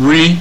ri